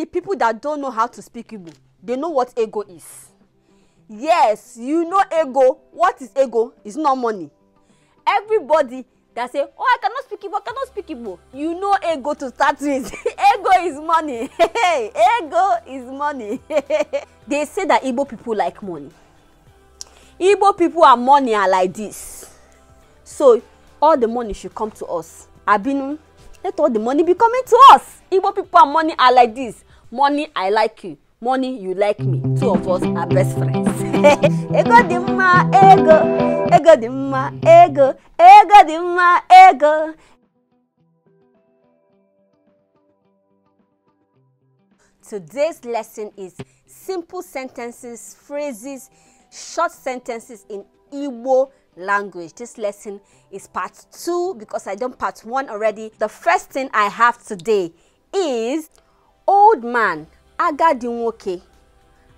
the people that don't know how to speak Igbo they know what ego is yes you know ego what is ego it's not money everybody that say oh i cannot speak igbo i cannot speak igbo you know ego to start with ego is money ego is money they say that igbo people like money igbo people are money are like this so all the money should come to us abinu let all the money be coming to us igbo people and money are like this money i like you money you like me two of us are best friends ego dị ma ego ego dị ma ego ego dị ego Today's lesson is simple sentences, phrases, short sentences in Igbo language. This lesson is part two because I done part one already. The first thing I have today is old man agadi nwoke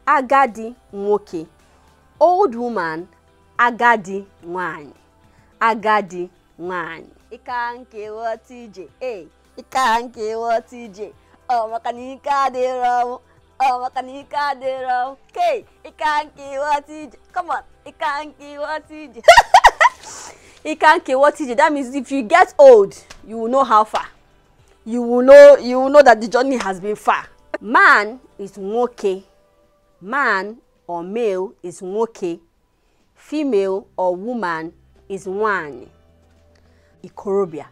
agadi nwoke old woman agadi nwanyị agadi nwanyị ike nke ghọta ije ee ike nke ghọta ije ọ maka na ike adịrọ ọnwụ ọ na ike adịrọ ọnwụ kee ike nke ghọta ije come on ike nke ghọta ije ike nke ghọta ije that means if you get old you will know how far you will know you will know that the journey has been far. Man is nwoke. Man or male is nwoke. Female or woman is wan. Ikorobịa.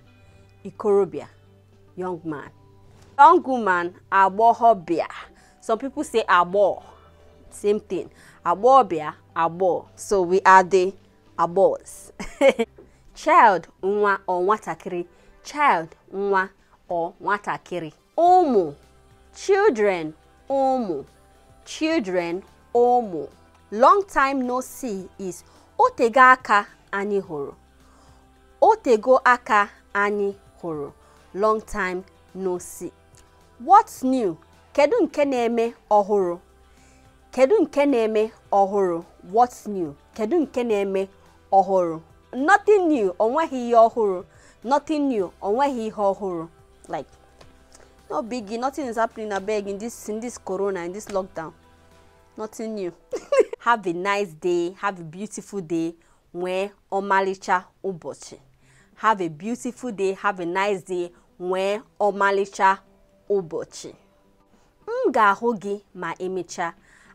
Ikorobịa. Young man. Young woman agbọghọbịa. Some people say abo. Same thing. Abobia abo. So we are the abos. Child nwa or nwatakịrị. Child nwa or nwatakịrị ụmụ children ụmụ children ụmụ long time no see is otego aka anyị hụrụ otego aka anyị hụrụ long time no see what's new kedu nke na-eme ọhụrụ kedu nke na-eme ọhụrụ what's new kedu nke na-eme nothing new onweghị ihe ọhụrụ like no biggie nothing is happening abeg in this in this corona in this lockdown nothing new have a nice day have a beautiful day nwee ọmalịcha ụbọchị have a beautiful day have a nice day nwee ọmalịcha ụbọchị m ga-ahụ gị ma emechaa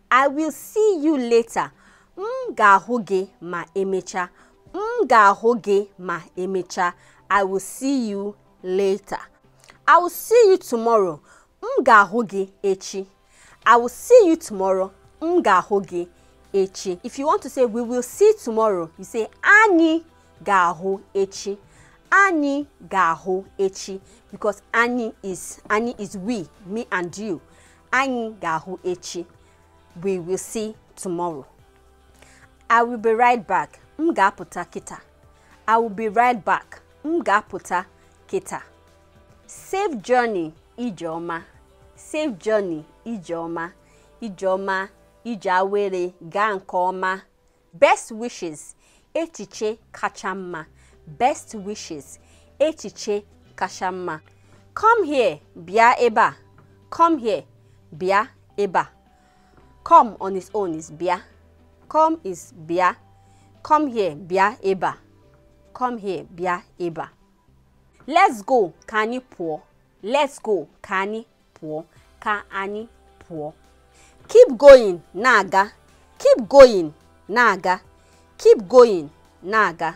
i will see you later m ga-ahụ gị ma emechaa m ga-ahụ gị ma emechaa i will see you later I will see you tomorrow. M ga-ahụ echi. I will see you tomorrow. M ga-ahụ echi. If you want to say we will see tomorrow, you say ani ga ga-ahụ echi. Ani ga ga-ahụ echi because ani is ani is we, me and you. Ani ga ga-ahụ echi. We will see tomorrow. I will be right back. M ga-apụta kịta. I will be right back. M ga-apụta kịta. safe journey ijeoma safe journey ijeoma ijeoma ije awere gaa nke ọma best wishes echiche kacha mma best wishes echiche kacha mma come here bịa ebe a come here bịa ebe a come on its own is bịa come is bịa come here bịa ebe a come here bịa ebe a let's go Kani anyi pụọ let's go Kani anyị Kani ka keep going naga. keep going naga. keep going naga.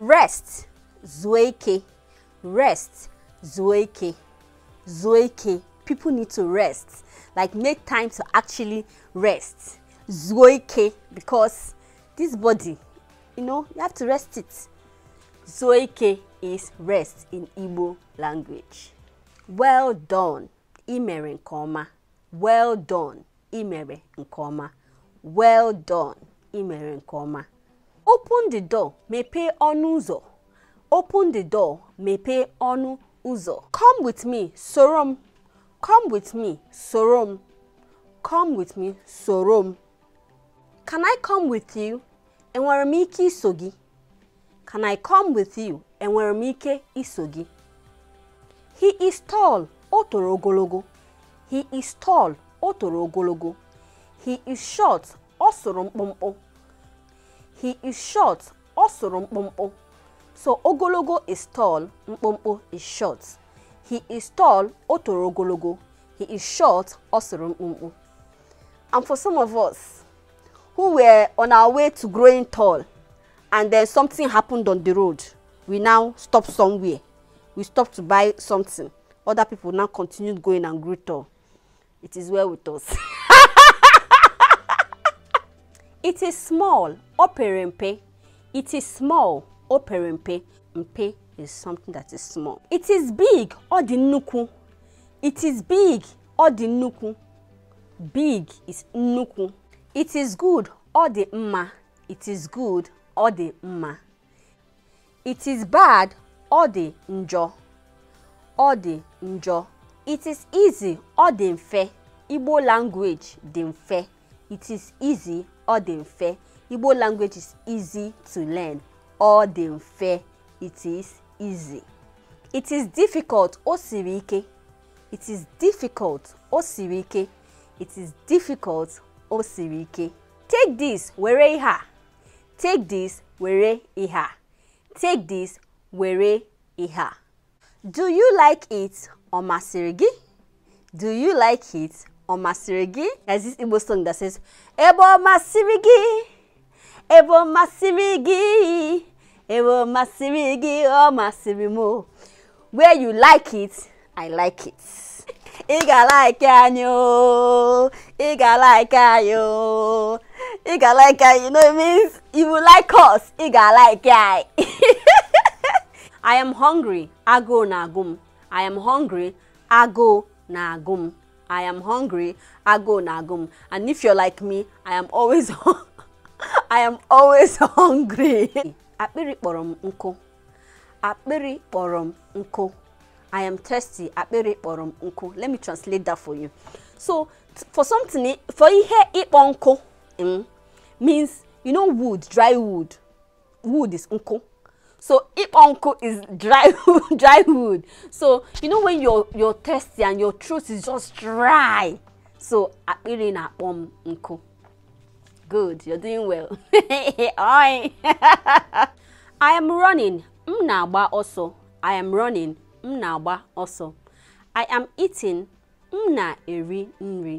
rest zoeke. rest zoeke. Zoeke. people need to rest like make time to actually rest zoeke. because this body you know you have to rest it zoeke is rest in Igbo language. Well done, imere nkoma. Well done, imere nkoma. Well done, imere nkoma. Open the door, mepe ọnụ ụzọ. Open the door, mepe ọnụ ụzọ. Come with me, sorom. Come with me, sorom. Come with me, sorom. Can I come with you? Enwere sogi. Can I come with you? Enwere m ike iso gị? He is tall. Otoro ogologo. He is tall. Otoro ogologo. He is short. Ọ mkpụmkpụ. He is short. Ọ mkpụmkpụ. So ogologo is tall, mkpụmkpụ is short. He is tall, Otoro ogologo. He is short, ọ mkpụmkpụ. And for some of us who were on our way to growing tall, and then something happened on the road we now stop somewhere we stop to buy something other people now continue going and greet it is well with us it is small operempe it is small operempe mpe is something that is small it is big ọ it is big ọ big is nuku. it is good ọ dị mma it is good ọ dị mma it is bad ọ dị njọ ọ dị njọ it is easy ọ dị mfe Igbo language dị mfe it is easy ọ dị mfe Igbo language is easy to learn ọ dị mfe it is easy it is difficult o siri ike it is difficult o siri ike it is difficult o siri ike take this were ihe a Take this, were iha. Take this, were iha. Do you like it or masiri Do you like it or masiri There's this Igbo song that says, "Ebo masịrị gị, ebo masịrị gị, ebo masịrị gị, ọ masịrị Where you like it, I like it. ị ga-alaiki anyị ooo ị ga-alaiki anyị ooo ị ga-alaiki anyị you know it means you will like us ị ga-alaiki anyị I am hungry agụụ na-agụ m I am hungry agụụ na-agụ m I am hungry agụụ na-agụ m and if you're like me I am always I am always hungry akpịrị kpọrọ m nkụ akpịrị kpọrọ m nkụ I am thirsty. Akpere kpọrọ unko. Let me translate that for you. So for something for ihe ịkpọ unko mm, means you know wood, dry wood. Wood is unko. So ịkpọ unko is dry wood, dry wood. So you know when you're you're thirsty and your throat is just dry. So akpere na-akpọ unko. Good, you're doing well. I am running. Mna ba also. I am running m na-agba ọsọ I am eating m na-eri nri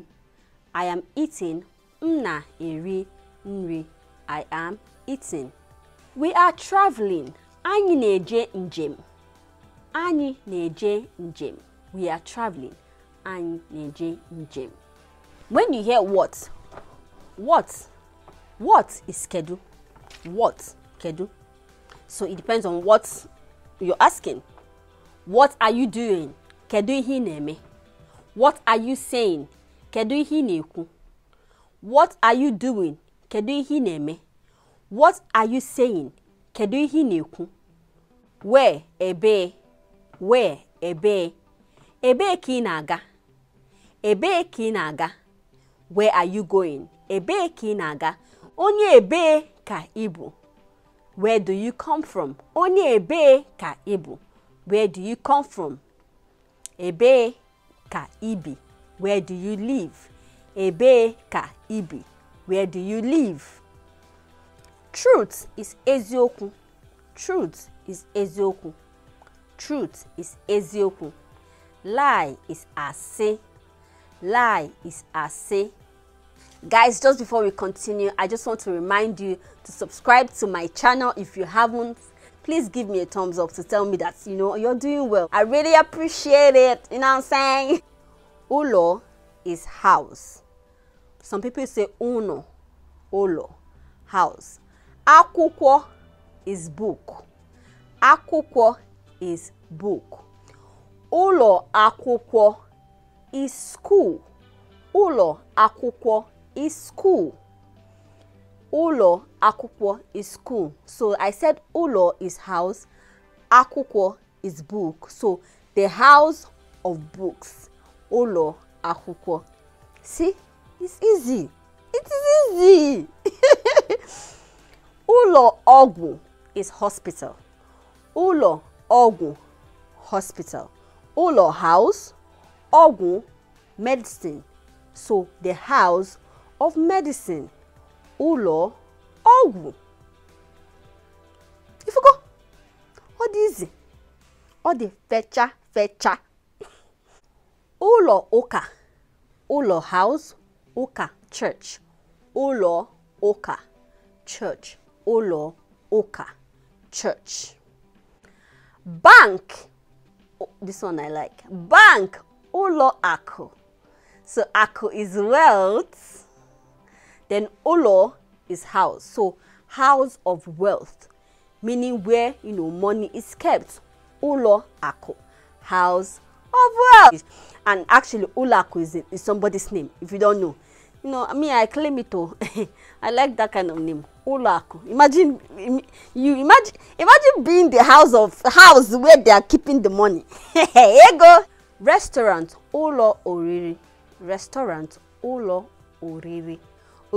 I am eating m na-eri nri I am eating We are traveling anyị na-eje njem anyị na-eje njem we are traveling anyị na-eje njem when you hear what what what is schedule, what kedu so it depends on what you're asking what are you doing? Kedu ihe na What are you saying? Kedu ihe na What are you doing? Kedu ihe na What are you saying? Kedu ihe na Where ebe? Where ebe? Ebe ki naga? Ebe ki naga? Where are you going? Ebe ki naga? Onye ebe ka ibu. Where do you come from? Onye ebe ka ibu. Where do you come from? Ebe ka ibi. Where do you live? Ebe ka ibi. Where do you live? Truth is Ezioku. Truth is Ezioku. Truth is Ezioku. Lie is ase. Lie is ase. Guys, just before we continue, I just want to remind you to subscribe to my channel if you haven't please give me a thumbs up to tell me that, you know, you're doing well. I really appreciate it. You know what I'm saying? Ulo is house. Some people say uno, ulo, house. Akwụkwọ is book. Akwụkwọ is book. Ụlọ akwụkwọ is school. Ụlọ akwụkwọ is school. Ulo akwụkwọ is school. So I said ulo is house, akwụkwọ is book. So the house of books. Ulo akwụkwọ. See, it's easy. It is easy. ulo ogu is hospital. Ulo ogu hospital. Ulo house, ogu medicine. So the house of medicine ụlọ ọgwụ ifugo ọ dị izi ọ dị fecha fecha ụlọ ụka ụlọ house ụka church ụlọ ụka church ụlọ ụka church bank this one I like bank ụlọ akụ so akụ is wealth then Olo is house. So house of wealth, meaning where you know money is kept. Olo Ako, house of wealth. And actually Olo Ako is, is somebody's name, if you don't know. You know, I mean, I claim it oh. all. I like that kind of name. Olaku. Imagine you imagine imagine being the house of house where they are keeping the money. Here go. Restaurant Olo Oriri. Restaurant Olo Oriri.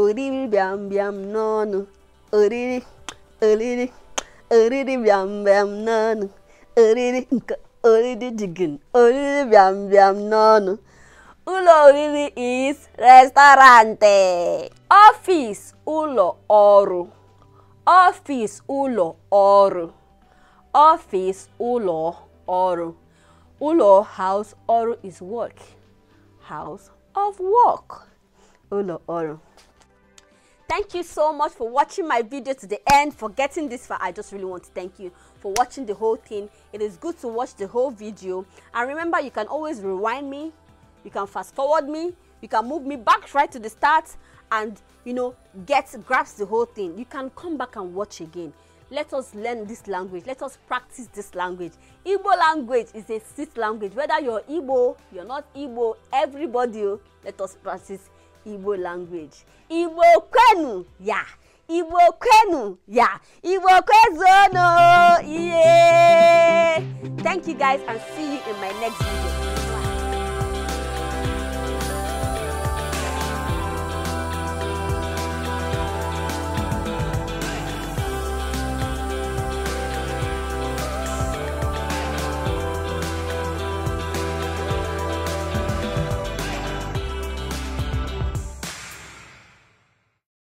oriri bịam bịam n'ọnụ oriri oriri oriri bịam bịam n'ọnụ oriri nke oriri jigin oriri bịam bịam n'ọnụ ụlọ oriri is restaurante, ọfịs ụlọ ọrụ ọfịs ụlọ ọrụ ọfịs ụlọ ọrụ ụlọ house ọrụ is work house of work ụlọ ọrụ thank you so much for watching my video to the end for getting this far i just really want to thank you for watching the whole thing it is good to watch the whole video and remember you can always rewind me you can fast forward me you can move me back right to the start and you know get grasp the whole thing you can come back and watch again let us learn this language let us practice this language igbo language is a sixth language whether you're igbo you're not igbo everybody oh, let us practice igbo language igbo kwenu ya igbo kwenu ya igbo kwezuonu iye thank you guys and see you in my next video.